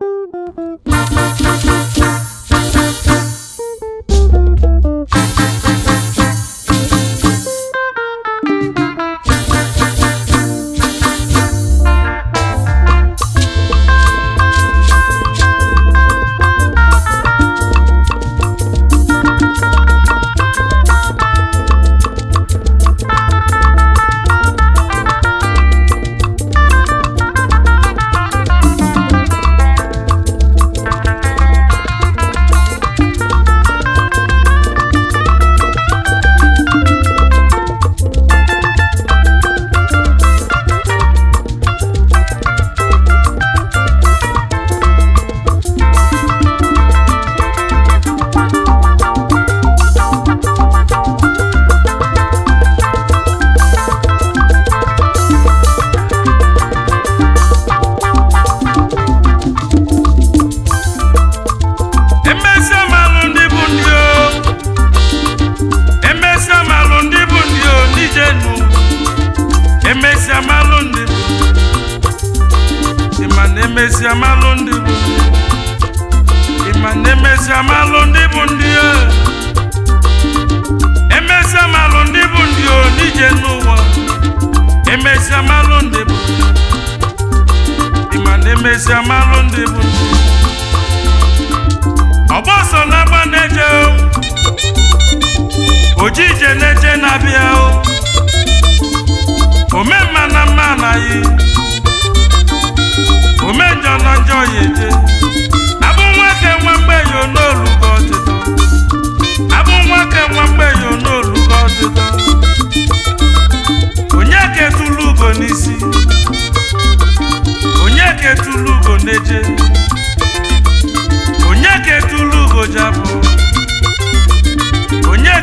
Thank you.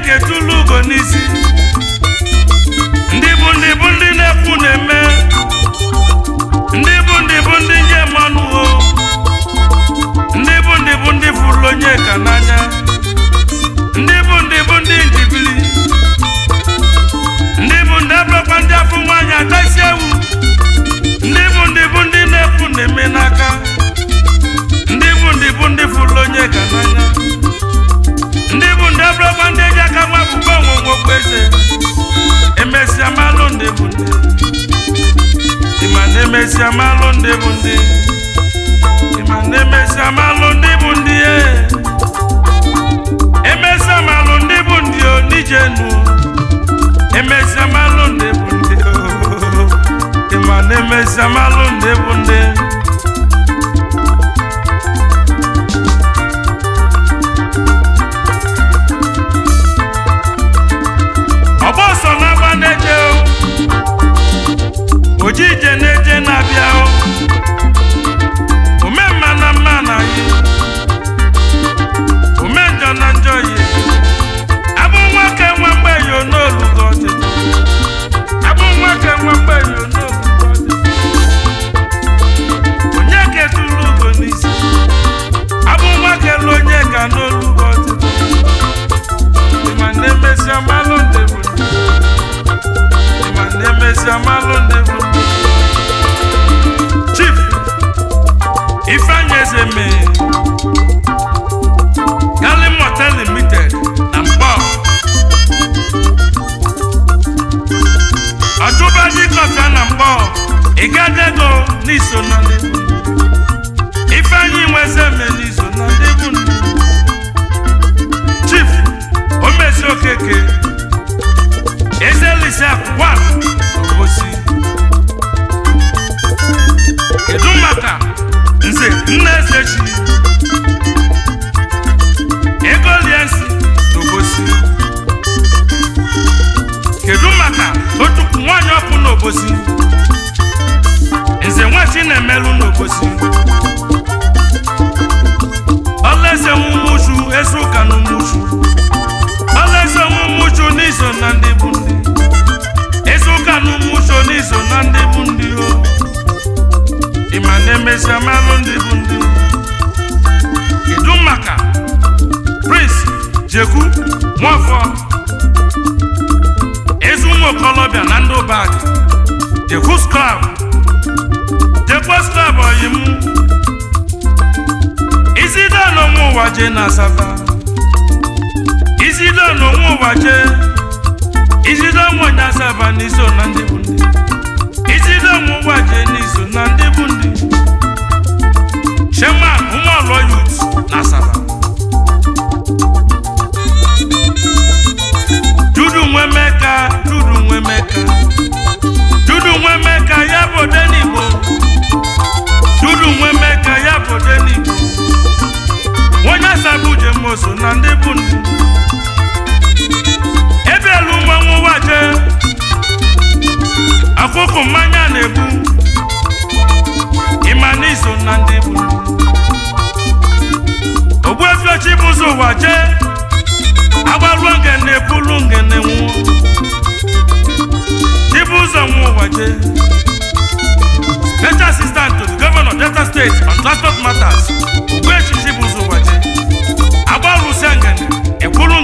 Chineke tụlụ ugo n'isi ndị bụ ndị bụ ndị na-ekwu na-eme ndị bụ ndị bụ ndị nye mmanụ ho ndị bụ ndị bụ ndị fụrụ onye ka n'anya ndị bụ ndị bụ ndị njibili ndị bụ ndị abụrụkwa ndị afọ nwaanyị atasi ewu ndị bụ ndị bụ ndị na-ekwu na-eme n'aka ndị bụ ndị bụ ndị fụrụ onye ka n'anya bụ ndị abụrụkwa ndị eji aka nwa akwụkwọ onwonwe ndị bụ ndị ịma na emesịa ndị bụ ndị ịma ndị bụ ndị e. ndị bụ ndị o nije nu ndị bụ ndị ịma oji ije na-eje na-abịa omemma na mma na ya Njọ na njọ ya abụ nwake nwa mgbei n'olugo ọdịda abụ nwake nwa mgbei n'olugo ọdịda onye ketụrụ ugo n'isi abụ nwake onye ka n'olugo ọdịda ma na-emesịa ma na n'iso na ndị nweze eme n'iso na ndị egwu chief omezi okeke ezelisa kwa osi kedu maka nze nne eze chi ego liensi n'obosi kedu maka otu nwaanyị ọkụ n'obosi Nwafọ ezi ụmụ okolobịa na ndị ụbadị the host club the post club oyi m izide n'onwe ụwa je na Asaba. izide n'onwe ụwa je. izide onwe asaba n'iso na ndị bụ ndị izide onwe ụwa je n'iso na ndị bụ ndị chema ụmụ ọlọ yut na asafa Ebielu Mgbanwe jemoso na ndị bụ akụkụ mmanya na-ebu ịmana iso na ndị bụ ogbuefiochi bụ ụzọ ụwa jee agbaruo ngene ebulu nwụọ chibu ụzọ nwụọ ụwa jee special assistant to the governor delta state on transport matters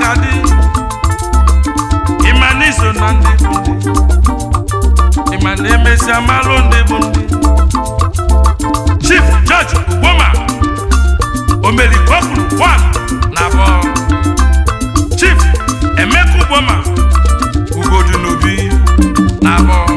ga-adị ịma na iso na ndị bụ ndị ịma na emesịa malụ ndị bụ ndị Chief George Ugboma omerikokwuru one na abụọ Chief Emeka Ugboma Ugodunobi n'obi na abụọ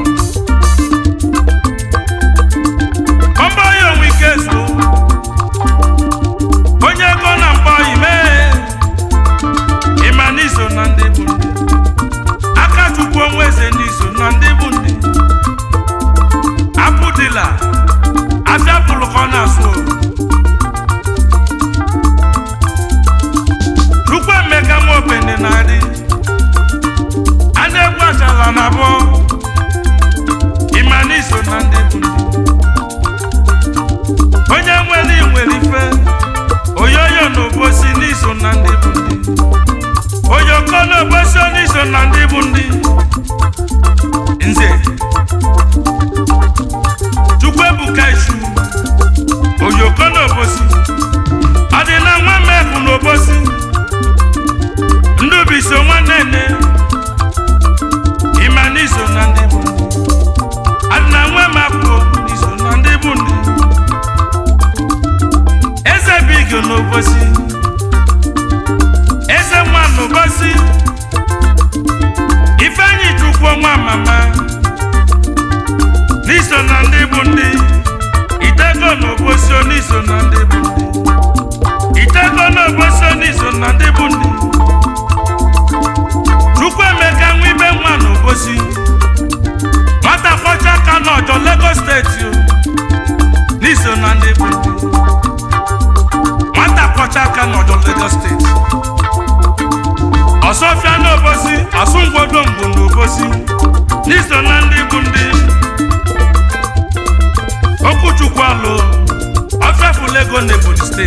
make you no pussy.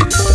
six.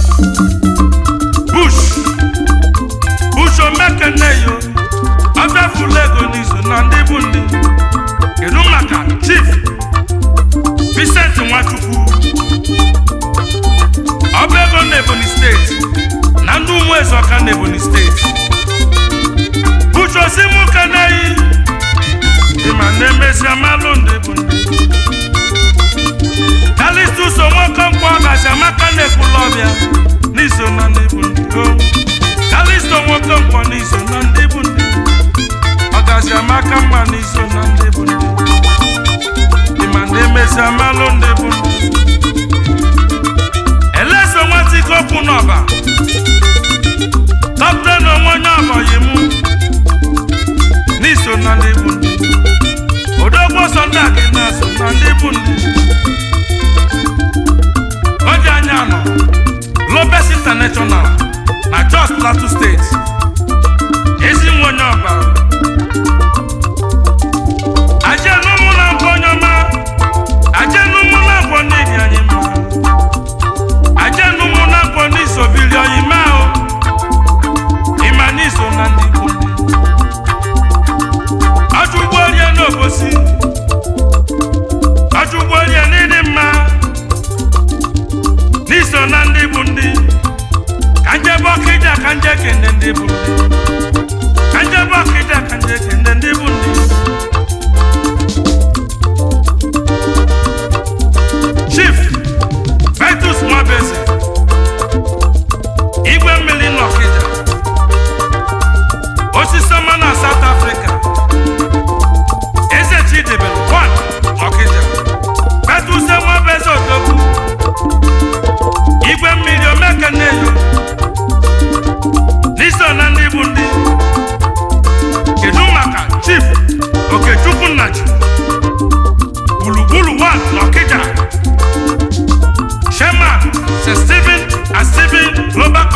Shift.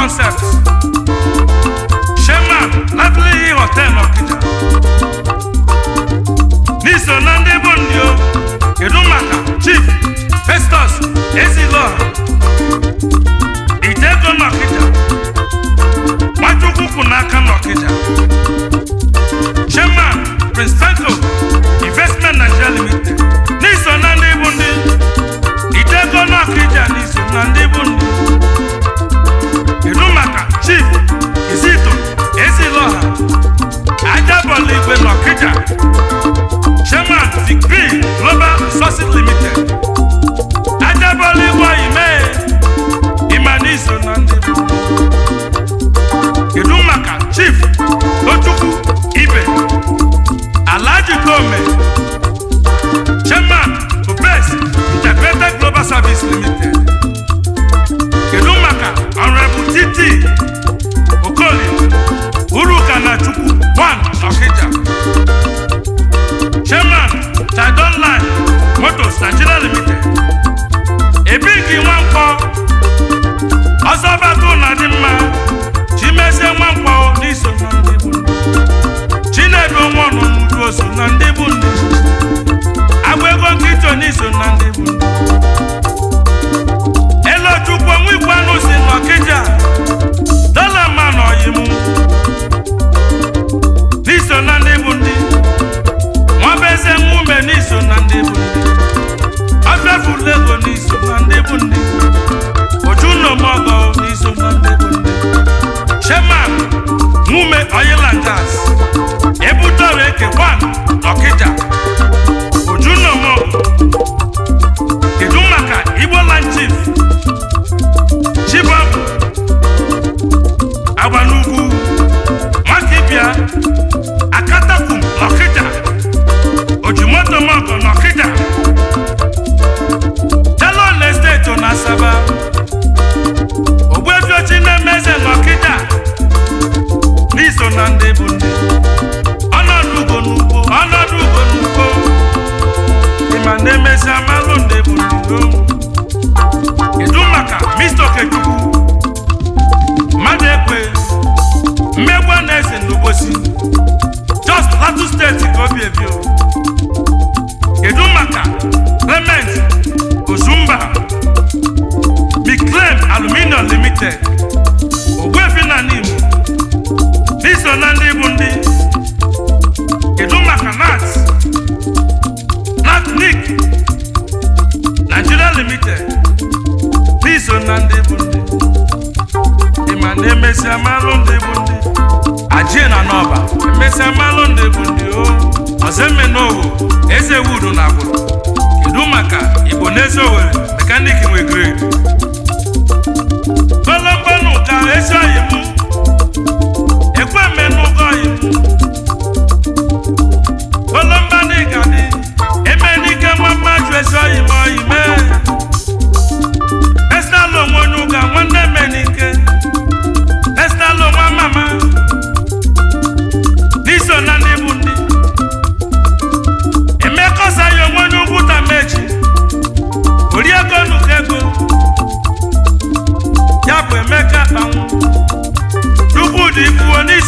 concept shema lively hotel ọkịja n'iso na ndị bụ ndị chief festus ezilo itego n'ọkịja nwachukwu kwụ n'aka n'ọkịja shema prince Nigeria Limited ebee ka nwa mkpọ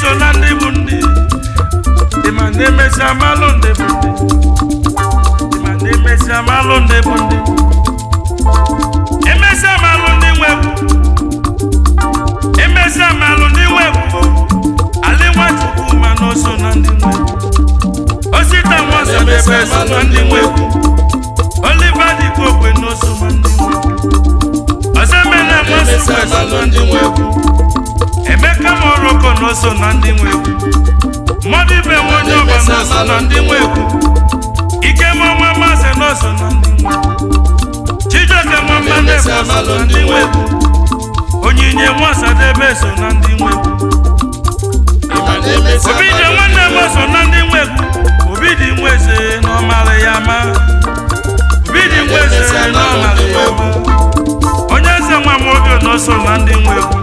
so na ndị bụ ndị dị ma ndị amalụ ndị bụ ndị dị ma ndị amalụ ndị bụ ndị emesịa amalụ ndị nwe bụ amalụ ndị nwe bụ alị ma na na ndị nwe osita nwa so e na ndị nwe bụ oliva dị na oso ma ndị nwe emela nwa so na ndị nwe bụ emeka moroko na oso na ndị nwe mmadụ ibe nwe onye ọba na oso na ndị nwe egwu ikemọnwa masị na oso na ndị nwe egwu chijioke mama ndefu so na ndị nwe egwu onyinye nwasadebe so na ndị nwe Obi obidie nwanne m so na ndị nwe Obi obidi nwe eze na ọmara ya ma obidi nwe eze na ọmara ya ma onye eze nwa m oge na oso na ndị nwe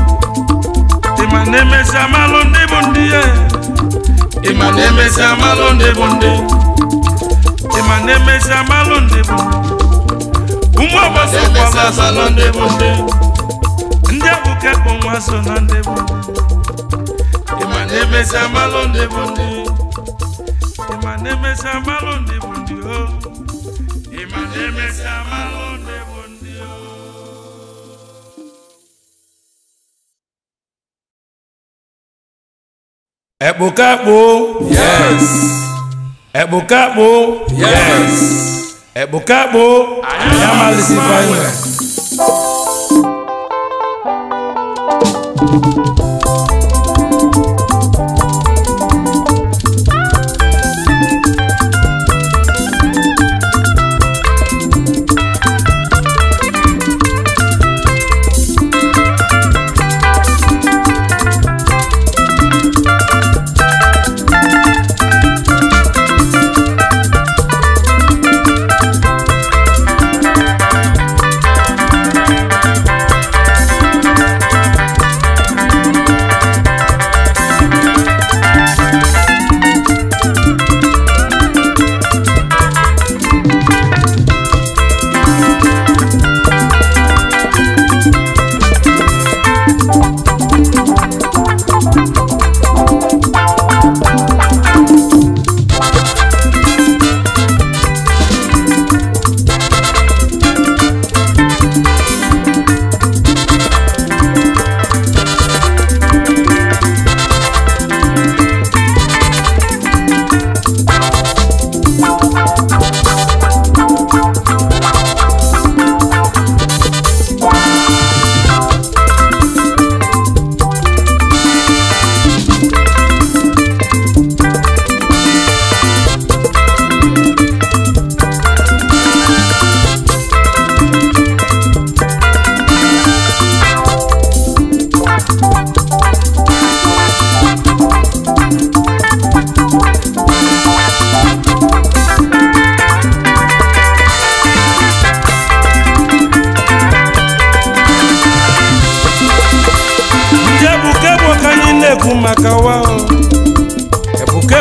ịma na-emesi amalụ ndị bụ nde ya ịma na-emesi amalụ bụ nde ịma na-emesi amalụ ndị bụ ụmụ ọgbasa kwala ndị bụ ndị ndị nwa so na ndị bụ ịma na-emesi amalụ ndị bụ nde ịma Ẹ̀pùkápò. Yes. Ẹ̀pùkápò. Yes. Ẹ̀pùkápò. Ayamalisi finally.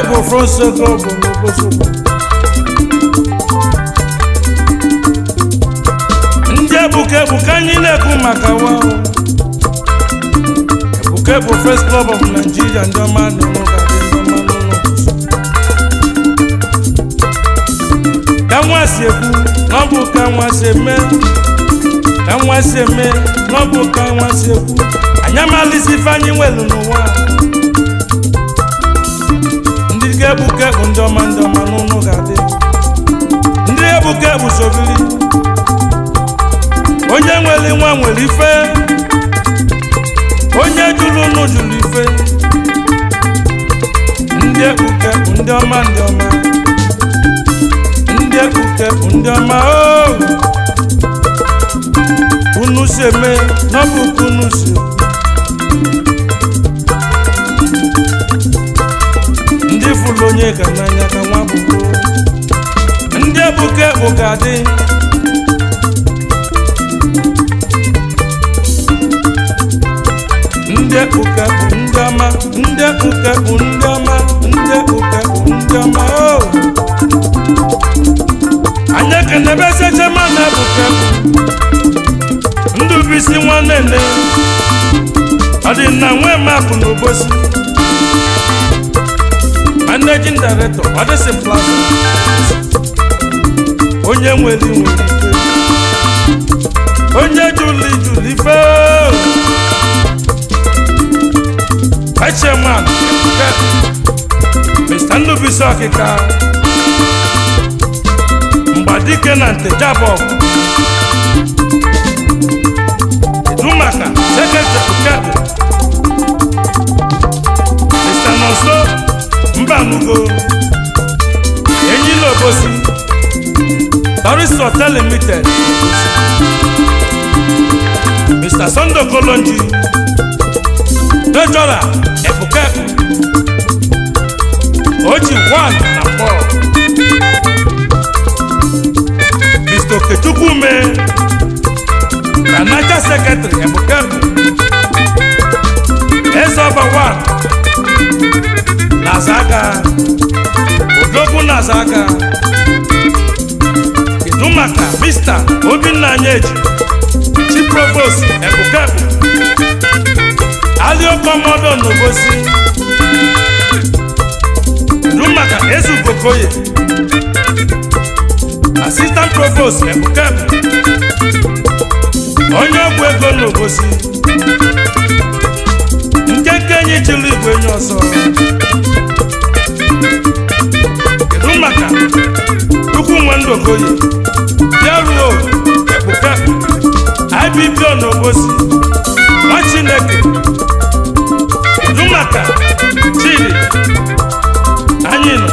from Ndị ebuka ebuka anyị na-ekwu maka wa ebuka bụ First Club of Nigeria ndị ọma n'ụlọ ga ndị ọma ka si na ọ bụ ka nwa si eme ka eme na ọ bụ ka nwa si anyị amalisi ife anyị n'ụwa ndị ebuke bụ ndị ọma ndị ọma n'ụnụ ga-adị ndị ebuke bụ sovili onye nwere nwa nwere ife onye jụrụ ụnụ juru ife ndị ebuke bụ ndị ọma ndị ọma ndị ebuke bụ ndị ọma oh. unu si eme n'ọbụkụ unu si ifụlụ onye ka n'anya ka nwa bụ ndị ebuka ebuka dị ndị ebuka bụ ndị ọma ndị ebuka bụ ndị ọma ndị ebuka bụ ndị ọma o anya n'ebe seche na ebuka ndụ bụ isi nwanne nne ọ dị na nwe mapụ n'obosi managing director ọ dịsị plaza onye nwere nwere ike onye juli juli fee chairman Mr. Ndubuisi Okika Mgbadike na Ntejabọg Edumaka Secretary Mr. Nonso ibamugo enyila bosi. Paris Hotel Limited Mr. Sando Kolonji Dejora Ebuka Oji Wan na Paul Mr. Okechukwume Manager Secretary Ebuka Ezoba Wan Nazaga Odogwu Nazaga Kedu maka Mr. Obinna Anyeji Chief Provost Ebukebu Aliokomodo Nobosi Kedu maka Ezugokoye Assistant Provost Ebukebu Onye ọgwụ ego Nobosi ekenyi chụlụ igwe nye ọsọ kedu maka ukwu nwe ndụ okoye bịaruo ebuka ibibio na obosi nwa chineke kedu maka chidi anyị nọ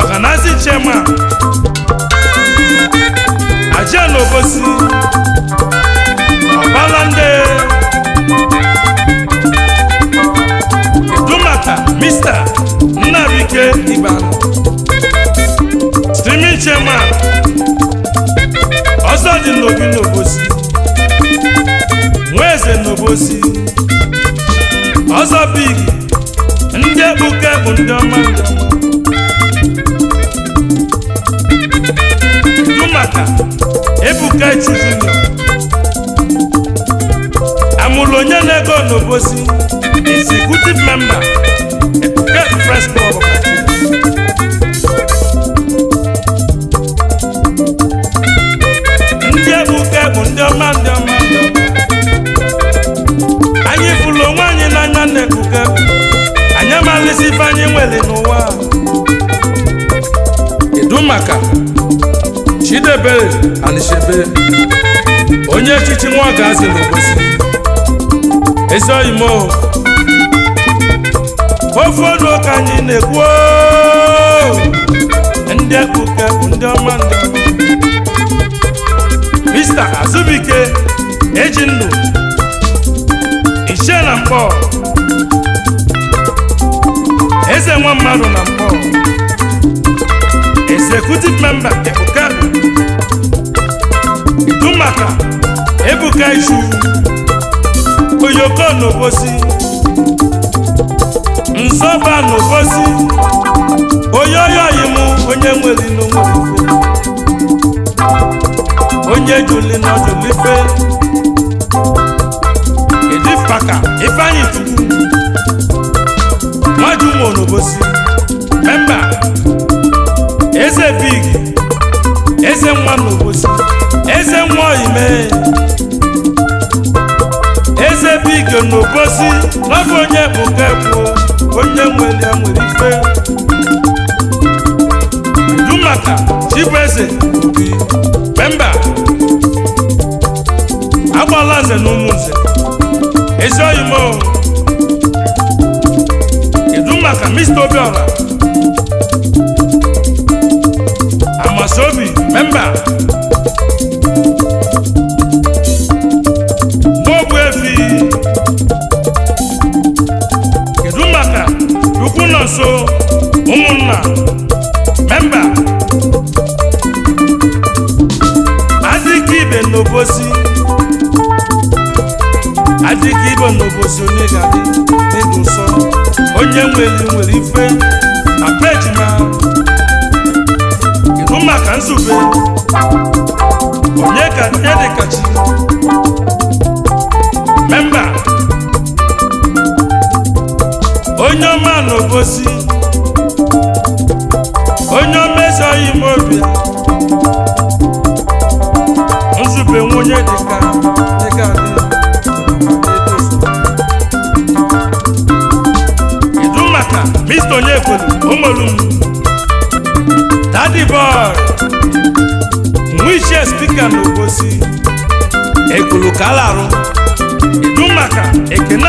ọganazi chema aja na obosi ọbalande dumata mista nnabike iban streaming chairman ọzọ dị n'obi n'obosi nwaeze n'obosi ọzọ big ndị kpuke bụ ndị ọma dumata ebuka chizino amụlụ onye na-ego n'obosi executive member Press Club ndị ebuka bụ ndị ọma ndị ọma anyị fụlụ onwe anyị n'anya na-ebuka anyị amalisi ife anyị nwere n'ụwa kedu maka Chidebere Anishebe onye echichi nwa ga-azị esoghị m ofe ọnụ ka anyị na-ekwu oh. ndị ekpuke ndị ọma ndụ Mr. Azubike eji ndụ na mkpọ eze nwa mmadụ na mkpọ executive member ekpuke dụ maka ebuka ichu oyoko n'obosi nsọba n'obosi oyoyoyi mụ onye nwere n'onwere onye juli na julife edipaka ifeanyi tupu nwaju nwo n'obosi memba eze big eze nwa n'obosi eze nwa ime. ebe ike n'obosi n'ọbụ onye bụka ebu onye nwere nwere ife du maka Obi Pemba agbala nze na ụmụ nze ezi oyimo edu maka Mr. Obiora Amasobi nọ nso ụmụnna memba adịkibe n'obosi adịkibe n'obosi onye ga-adị ịdị nsọ onye nwere nwere ife na pejima ịhụ maka nzube onye ka edekachi onye ọma na obosi onye omezọghị m obi nzube nwunye dịka dịka idu maka mr onyekolo omolum dadi boy nwichie spika na obosi ekulu kalarụ idu maka ekene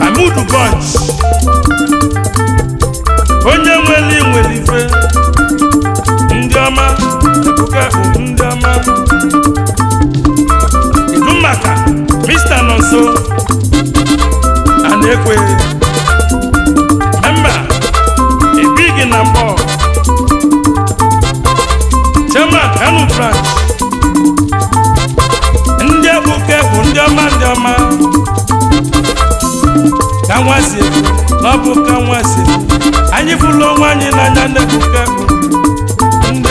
amudu bunch onye nwere nwere ife ndị ọma ebuka bụ ndị ọma idu maka mr nọ nso a na-ekwe mba ibighị na mbọ chairman kanu branch ndị ebuka bụ ndị ọma ndị ọma ka nwa si ọ bụ ka nwa anyị fụlụ onwe anyị n'anya na-ebuka ebu ndị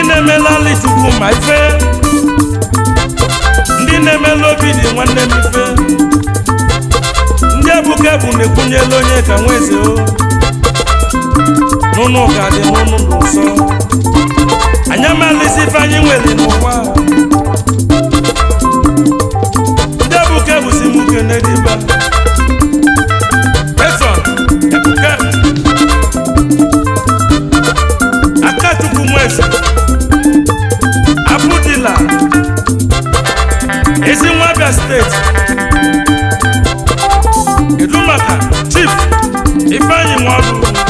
e. na-emelali chukwu ma ife ndị na eme obi dị nwanne m ife ndị ebuka ebu na-ekwunyela onye ka nwa eze o n'ụnụ ka dị n'ụnụ n'ụsọ anyị amalịzi ife anyị nwere n'ụwa ndị ebuka ebusi m ukene dịba peson ebuka akachukwu nwesi abudila ezi nwa abia steeti kedu maka chief ifeanyị nwaọrụ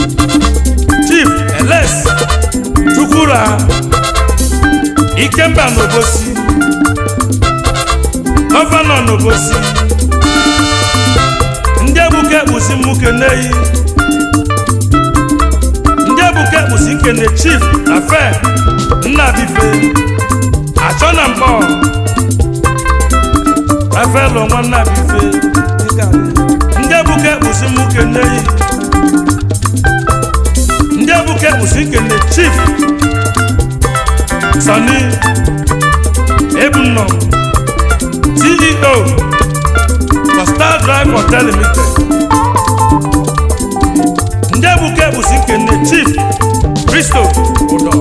Okura Ikemba n'Obosi Gọvanọ n'Obosi ndị egbuke ekpusi mmuke n'eyi ndị egbuke ekpusi nkene chief na nna bife achọ na mbọ afelo nwanna bife ndị egbuke ekpusi mmuke n'eyi ndị egbuke ekpusi nkene chief Sani Ebunọ CEO na Star Drive Hotel Limited ndị ebuka busi Chief Christo Udọ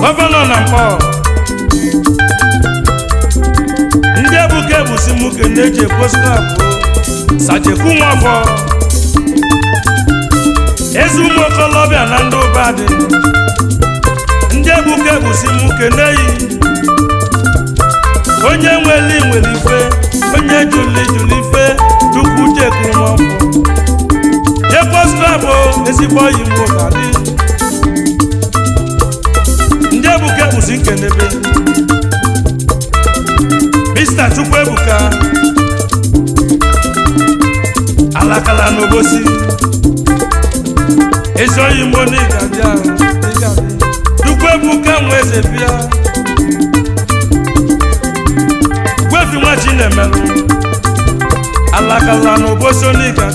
Gọvanọ na Nkpọ ndị ebuka busi m kene ji ekwosikabụ Sajekwu Nwafọ ezi na ndị dị onye ebuka ebusi mkeneyi onye nweli nwere ife onye juli juli ife chukwu chekuru m ọkụ jekwostabụ ezigbo oyi mgbo ka dị ndị ebuke ebuka ebusi nkenebe mista chukwu ebuka alakala n'obosi ezi oyi mgbo n'ịga bịa. ugwu kemgbe eze bịa gwefi nwa chinemelụ alakala na obosoniga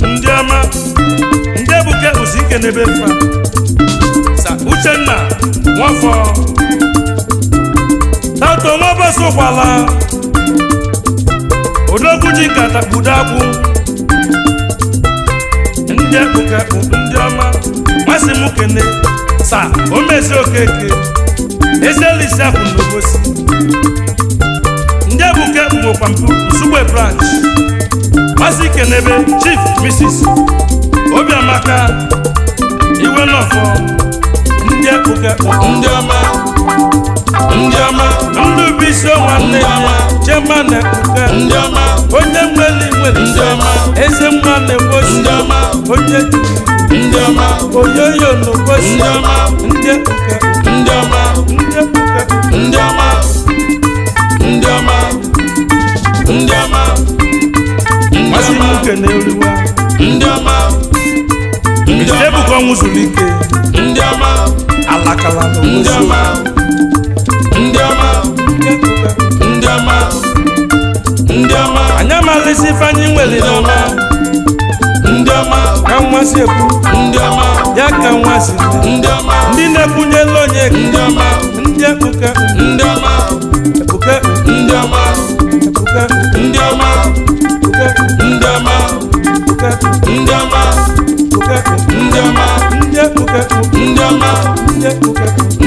dị ndị ọma ndị ebuke ụzi nkenebe mfa sa uchenna nwafọ tato nwa bọsụ ụkwala odogwu ji nkata akwụ ndị ebuka bụ ndị ọma masị m kene sa omezi okeke ezelisia bụ n'obosi ndị ebuke bụkwa mpụ nsugbe branch masị kenebe chief mrs obiamaka iwe nọfọ ndị ebuke bụ ndị ọma Ndịọma Ndubuisi nwanne ya Chema na Kuka Ndịọma onye nwere nwere Ndịọma eze mma na-egbosi Ndịọma onye Ndịọma oyoyo na-egbosi Ndịọma ndị Kuka ndị Kuka Ndịọma Ndịọma Ndịọma Masị Muke na-eriwa Ndịọma Ndịọma Ebuka ọnwụ zuru ike Ndịọma ndị ọma ndị ọma ndị ọma anyị amalisi ifeanyị nwere ndị ọma ya ka nwa si ndị ndị na-ekwunyela ndị ọma ndị ndị ọma ndị ọma ndị ọma ndị ọma ndị ọma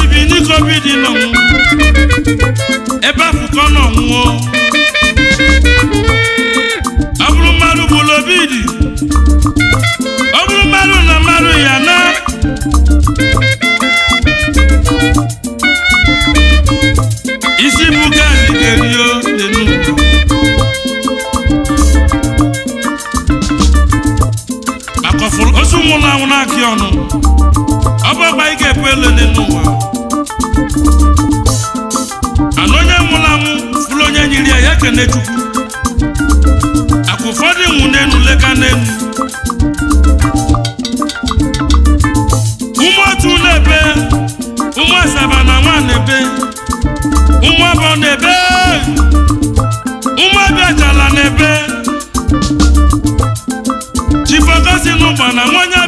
tibi ndị covid nọ ebe afụkọ nọ nwụọ ọ bụrụ mmadụ gburu obi dị ọ bụrụ mmadụ na mmadụ ya na isi bụ gaadị ga-erio dị n'ugwu akọfụrụ osu mụ na anwụ na akị ọnụ ọ bụ ọgba ike ekwele n'elu ekene chukwu akwa ụfọdụ nwụ ụmụ otu n'ebe ụmụ asaba na nwa n'ebe ụmụ abụọ n'ebe ụmụ abịachala na-ebe chibọgosi n'ụgba na nwanyị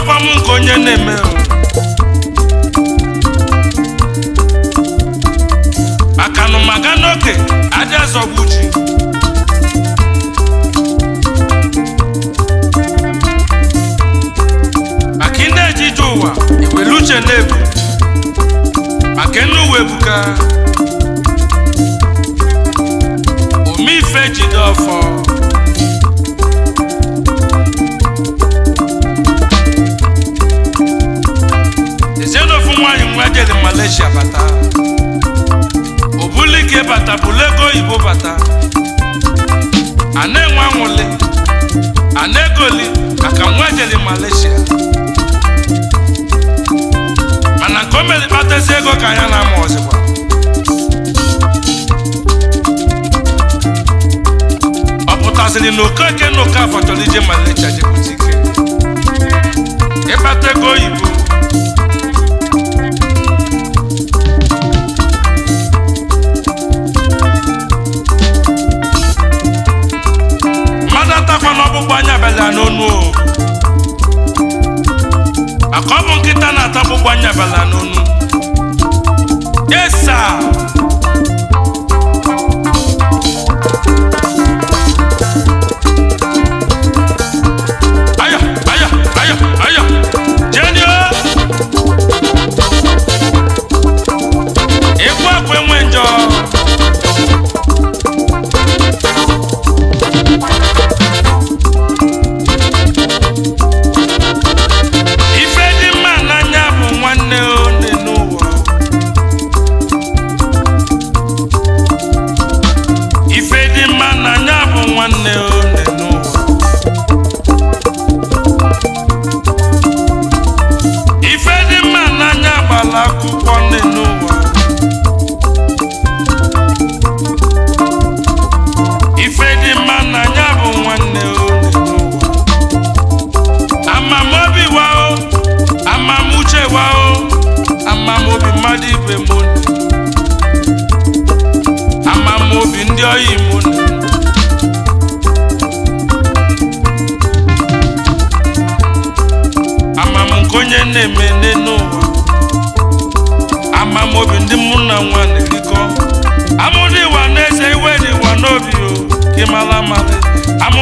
ọkwa m nke onye na-eme akanụmaga n'oke adịa zọgbu e ji maka ndị ejije ụwa iwere uche na-ebu maka nne uwe buga omeife jide ọfọ Malaysia bata ọ bata bụla oyibo bata Ana enwe anwụli ana na-egoli maka nwa jeli Malaysia mana nke o mere kpatazi ego ka anya na-ama ọzọkwa ọ pụtasịrị na okoke na oke afọ chọrọ ije Malaysia jebụta ike ịkpata ego oyibo ezigbo ọ bụ nkịta na-atakpụgbu anya bịala n'onu yesa Been know.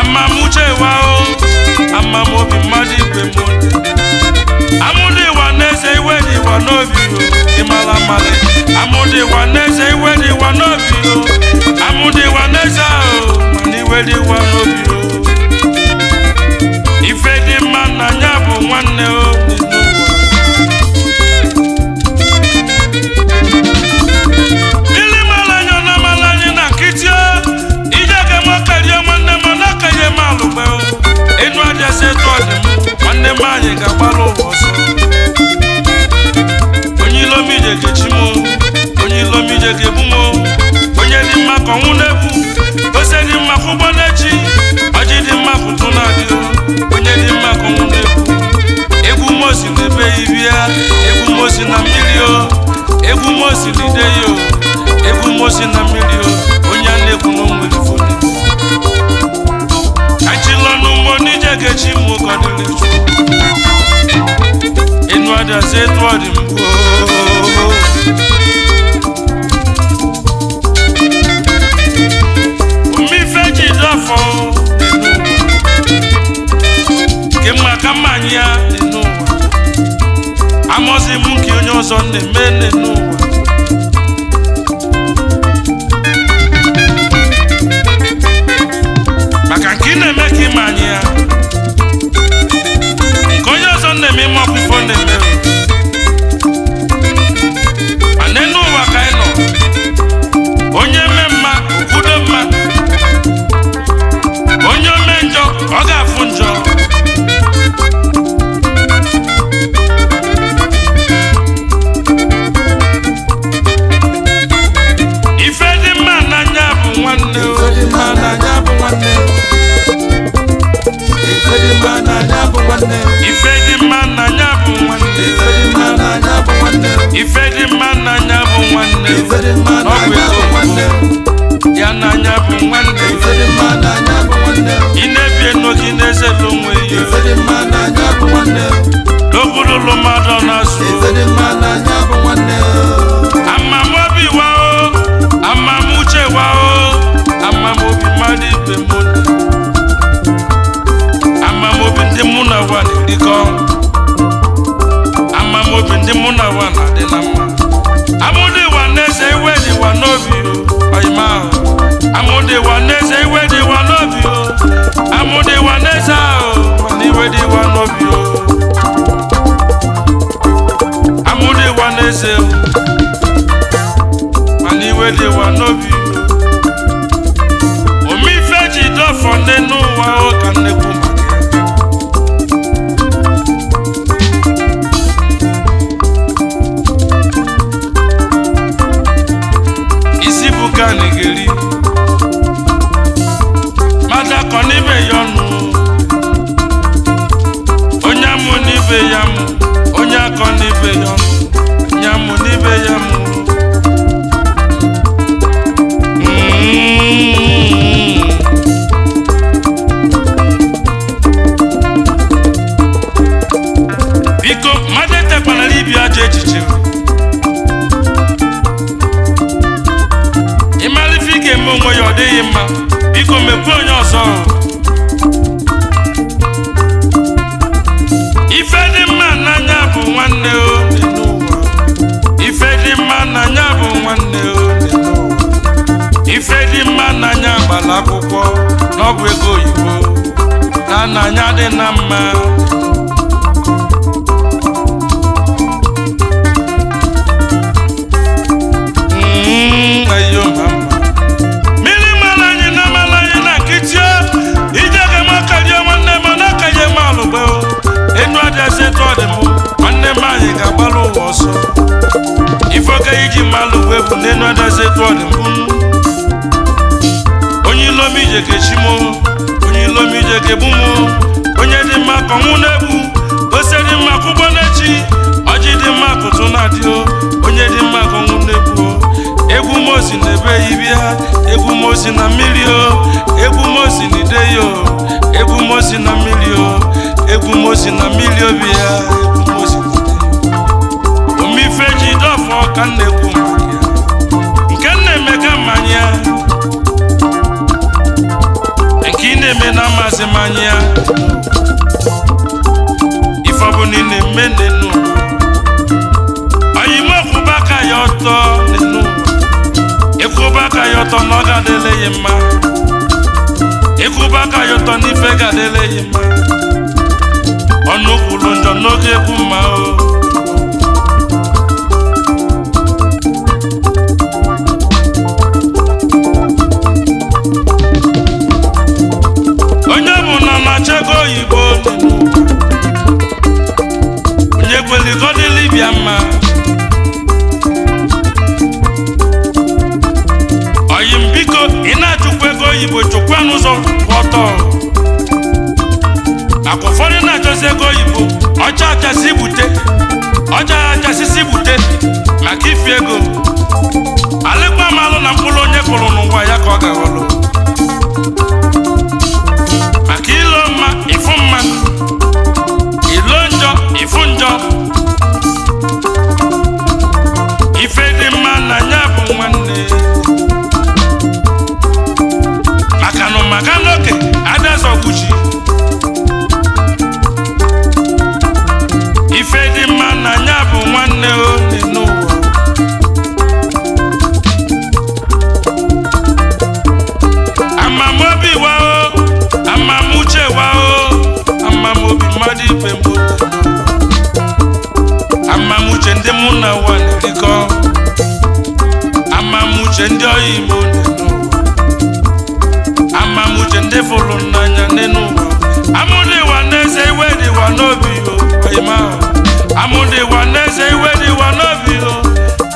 amamuche wa o amamobi mmadụ igwe m amụdị ịwa n'eze iwe dị ịwa n'obi ịmara amara amụdị ịwa n'eze iwe dị ịwa n'obi o ịwa n'eze ahụ o iwe dị ịwa n'obi ife dị mma na ya nwanne o ịjụ etu nwanne m ga-agbara ụwa ọsọ onye ilomije ga-echi m onye onye dị mma na dị mma ụgbọ ọjị dị mma na onye dị mma ka ọnwụ egwu mosi na ya na mmiri na onye a na-ekwu ọdị Nkechi Mwokodilichu Inuada zetu adi mkwo Umife jidafo Kema kamanya n'ụwa Amozi m nke onye ọzọ na-eme n'ụwa maka nke ị na-eme ka ịma anyị ya ụmụnne m ịma ọkpụkpọ na-eme ana enu ụwa ka anyị nọ onye eme mma kwudo mma onye ome njọ ọ ga-afụ njọ ife dị mma nwanne ife dị mma n'anya bụ nwanne ife dị mma n'anya bụ nwanne ọgwụ ego nwanne ya n'anya bụ nwanne ị na-ebie n'oge na-ezelụ onwe ya n'obodo na ụwa na-erikọ amamobi ndị mụ na na-adị na mma amụdị ịwa iwe dị aka ya ụtọ na ọ ga-adịleghị mma ịkwụba aka ya mma ọnụ njọ n'oge ekwu mma oyibo chụkwa n'ụzọ ọtọ maka ụfọdụ na-achọzi ego oyibo ọcha achasị bute ọcha achasịsị bute maka ifi ego alịkwa malụ na mkpụrụ onye kụrụ n'ụwa ya ka ọ ga-awọlụ maka n'oke adazọgbuchi ife dị mma na ya bụ nwanne onye n'ụwa amamobi wao amamuche wao amamobi mmadụ ibe mbụ amamuche ndị mụ na ụwa amamuche ndị ọya igbo ịfụlụnanya n'enu ugwu amụdịwa n'eze iwe dịwa n'obi o ịma amụdịwa n'eze iwe dịwa n'obi o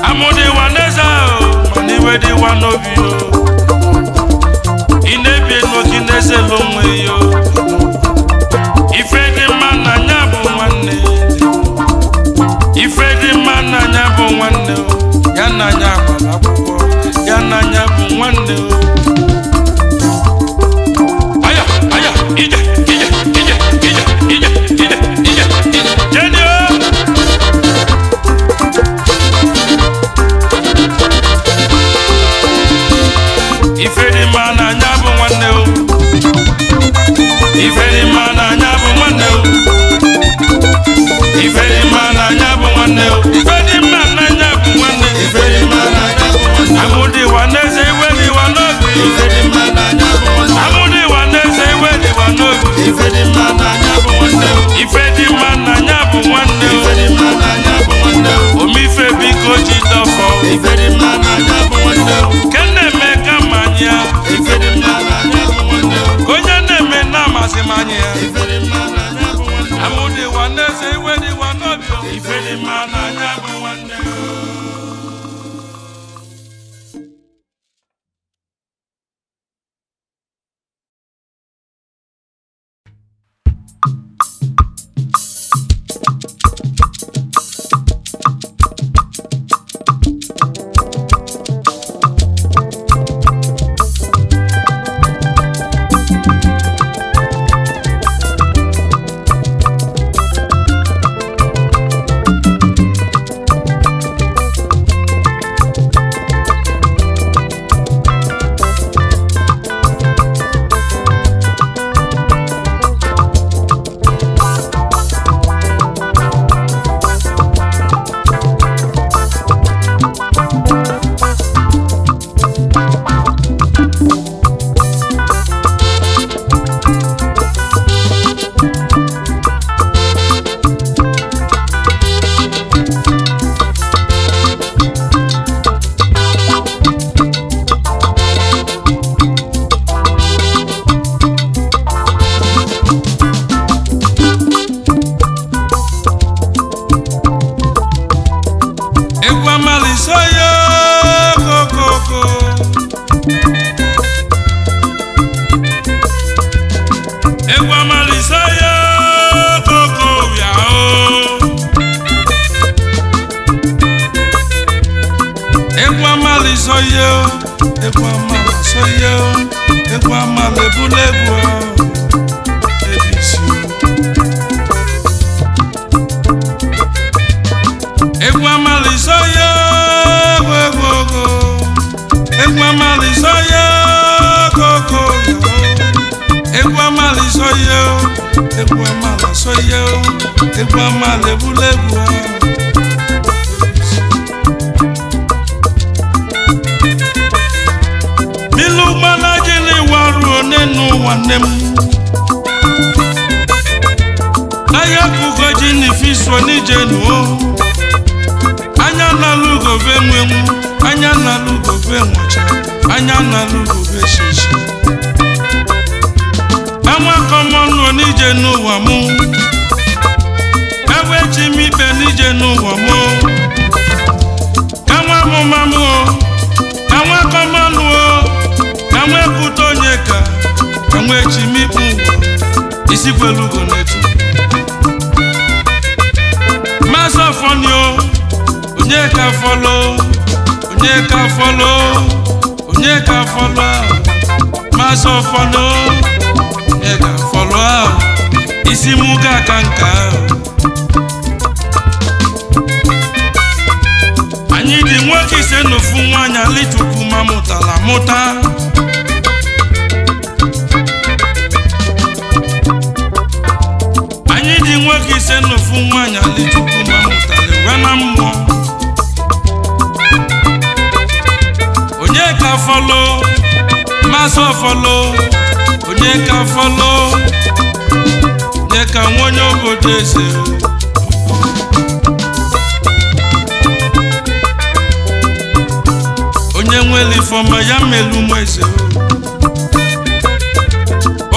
amụdịwa n'eze ahụ mana iwe dịwa n'obi o ị na-ebi elu gị n'eze n'onwe ya o soya kokoko egwu amali soya koko yao egwu amali soya soye egwu amala soye egwu amala egbulegwu milu gbana gịnị waruo n'enu nwanne m ahịa bụgo fi n'ifiso n'ije anya nalụgove nwenwu anya anya nalụgove shishi anwakọ mọnụ n'ije n'ụwa mụ ewe chi m ikpe n'ije n'ụwa mụ enwe amụmamụ anwakọ mọnụ enwe pụta onye ka enwe chi m ikpe ụwa isikwelugo n'etu masị ọfọnio onye ka fọlọ onye ka fọlọ onye ka fọlọ masị o. isi m ga aka nke ahụ anyị dị nwoke ise na ofu nwaanyị alịchukwu ma mụtara mụta anyị dị nwoke ise na ofu nwaanyị alịchukwu ma mụtara wee na mmụọ onye ka folo? Maso folo? onye ka folo? onye nwere ifeọma ya melu ụmụ eze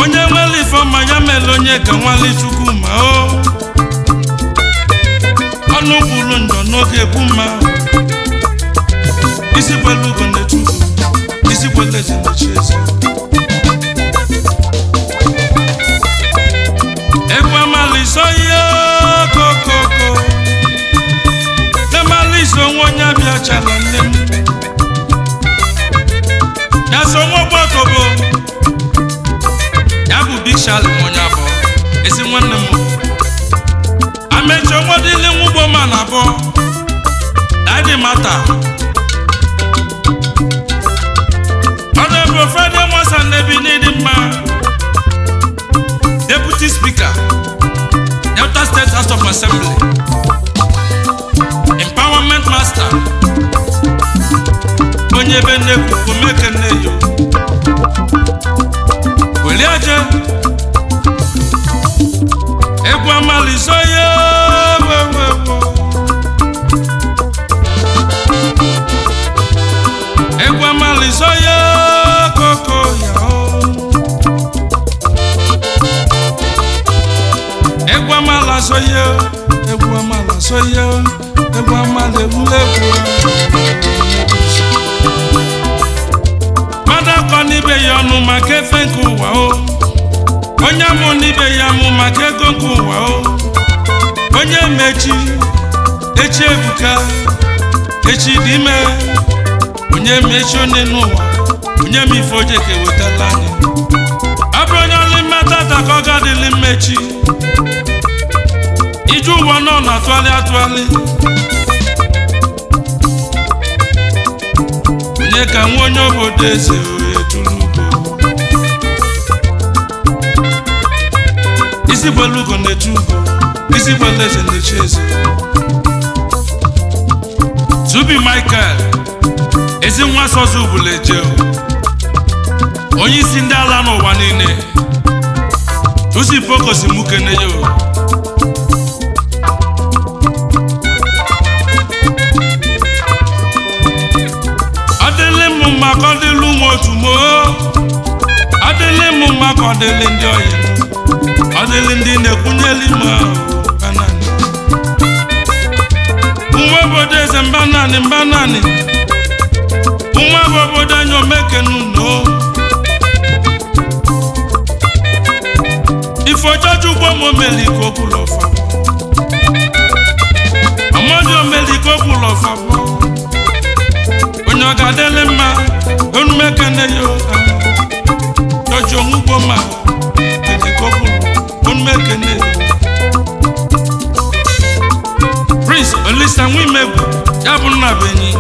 onye nwere ifeọma ya mere onye ka nwale chukwu ma o ọnụ gburu ndọ n'oge bụ mma isi kwelu ugo isi kwelu eze eze onye bịa chala nne m ya so nwa ọgbakọ bụ ya bụ big shalom onye abụọ ezi nwanne m amecha nwa dịle nwụgbo ma na abụọ dadi mata ọ na-ebe ofede nwasa ndebi n'ịdị mma deputy speaker delta state house of assembly nwata onye be nnekwu mekenejo welie je egwu amalizo ya egwu amalizo ya egwu amalazo ya egwu ya egwu mmadụ egwuregwu mmadụ akọ n'ibe ya ọnụ maka efe nke ụwa o onye amụ n'ibe ya amụ maka ego nke ụwa o onye mechi echi ebuka echi dị ime onye mechi onye n'ụwa onye m ife oje ka ewetala anyị ọ bụrụ onye ọlụ mmata ka ọ ga-adịlị ije ụwa nọ na atụgharị atụgharị onye ka nwa onye obodo eze etulugo isi gbelu ugo na-eche ugo isi gbelu eze na-eche eze tubi michael ezi nwa sozi ụbụla eje onye isi ndị ala n'ụwa niile tusi pokosi mukene ya otumoo ọdịlị m mma ka ọdịlị ndị ọyị ọdịlị ndị na-ekwunyeli m nwa obodo eze mba naanị mba naanị nwa bụ obodo anyị omekennno ifeojoju ugbo ọ ga-adịlị mma onumekene ya doji onwe ugbo ma ejikọpụ onumekene Prince Olisa Nwimegwu ya bụ nna benyi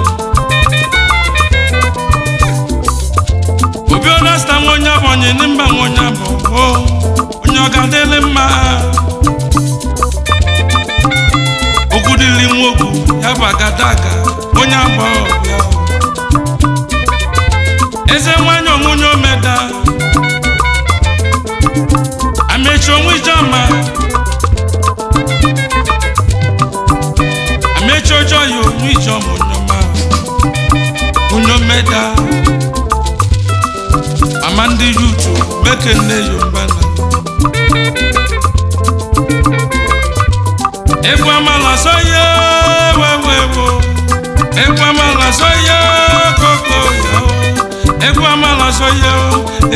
obi onasta nwa onye abụ onye ndị mba nwa onye abụ onye ọ ga-adịlị mma ogudili nwogu ya bụ agadaga onye abụ ọbịa eze nwanyị onwunye omeda amechi onwe ijeọma amechi ọjọọ ya onwe ijeọma onyoma onye omeda ama ndị yutu mekenne yombana egwu amala so ya wewewo egwu amala so ya koko ya ekwe amala soye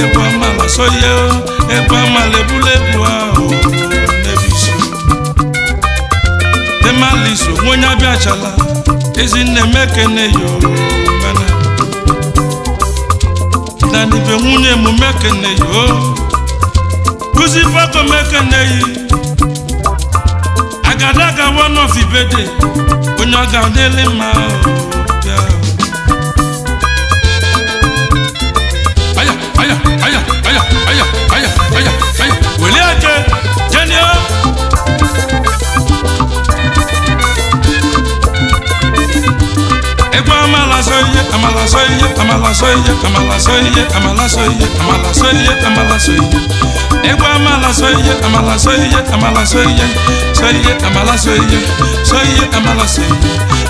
ekwe amala soye ekwe amala ebulebu ahụ nebiso emaliso onye abịachala ezinne mekene yo gana danibe nwunye mụ mekene yo kuzi fako mekene yi agadaga one of ibede onye ọ ga-adịlị mma aya aya aya aya wòlíì àjẹ jẹni ọ. ẹgbẹ́ amalasọ iye amalasọ iye amalasọ iye amalasọ iye amalasọ iye amalasọ iye amalasọ iye ẹgbẹ́ amalasọ iye amalasọ iye amalasọ iye sọ iye amalasọ iye sọ iye amalasọ iye.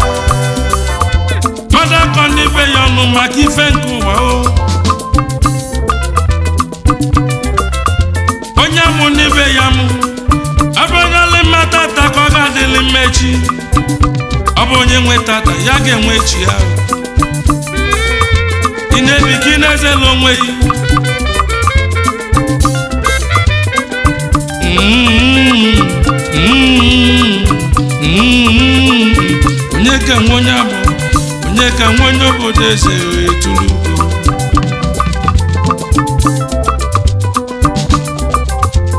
na-akọ be ya ọnụ maka ife nke ụwa o onye mụ n'ibe ya mụ abụnyela mmata taa ka ọ ga-adịlị mmechi ọ bụ onye nwetata ya ga-enwe chi ya ị na-ebi n'ezela ị na-ezela onwe gị onye ka nwe onye abụ eze ka nwanyị obodo eze wee tụrụ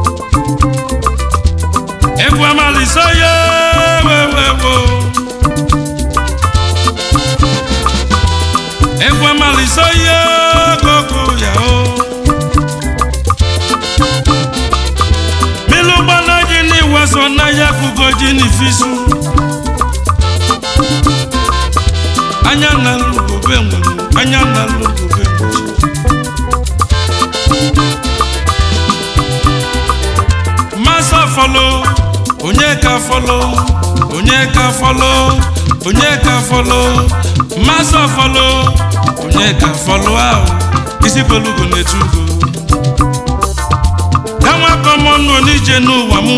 ugo egwu amalisa ya wewewo egwu amalisa ya gogo ya o milu gbana gị n'iwaso n'ahịa kugo ji n'ifisu onyeka fọlọ onyeka fọlọ mmasị onye ka fọlọ ahụ isi bolugo na-etu ugo kanwakọmọnụ n'ije n'ụwa mụ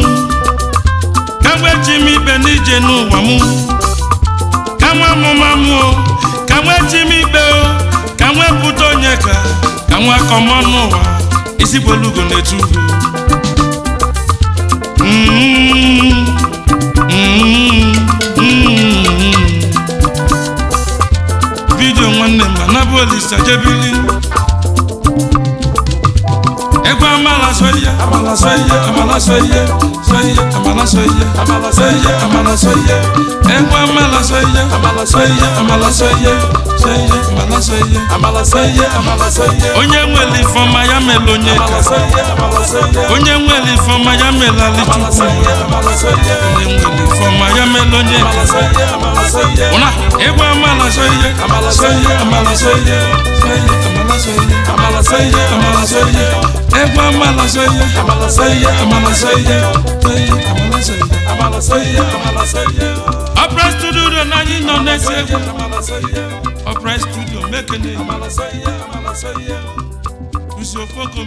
kanwe ji m ibe n'ije n'ụwa mụ kanwe mụ o kanwe ji m ikpe o kanwe pụta onyeka kanwe akọmọnụ ụwa isi bolugo na-etu mm-hmm. vidio nwanne m na bụ olisa jebili gbọ́ amala amala sọ amala sọ iye amala sọ amala sọ amala sọ iye ẹgbọ́ amala sọ amala sọ iye amala sọ iye sọ iye amala sọ iye amala sọ amala sọ iye onye nwere ifeọma ya mere onye ka onye nwere ifeọma ya mere alichukwu onye nwere ifeọma ya mere onye ka ụna ịgba amala sọ iye amala sọ soye amala soye amala soye amala soye ẹgbẹ amala studio do nanyi nọ n'ẹsẹ egwu ọpẹrẹ studio mekene nsuofoko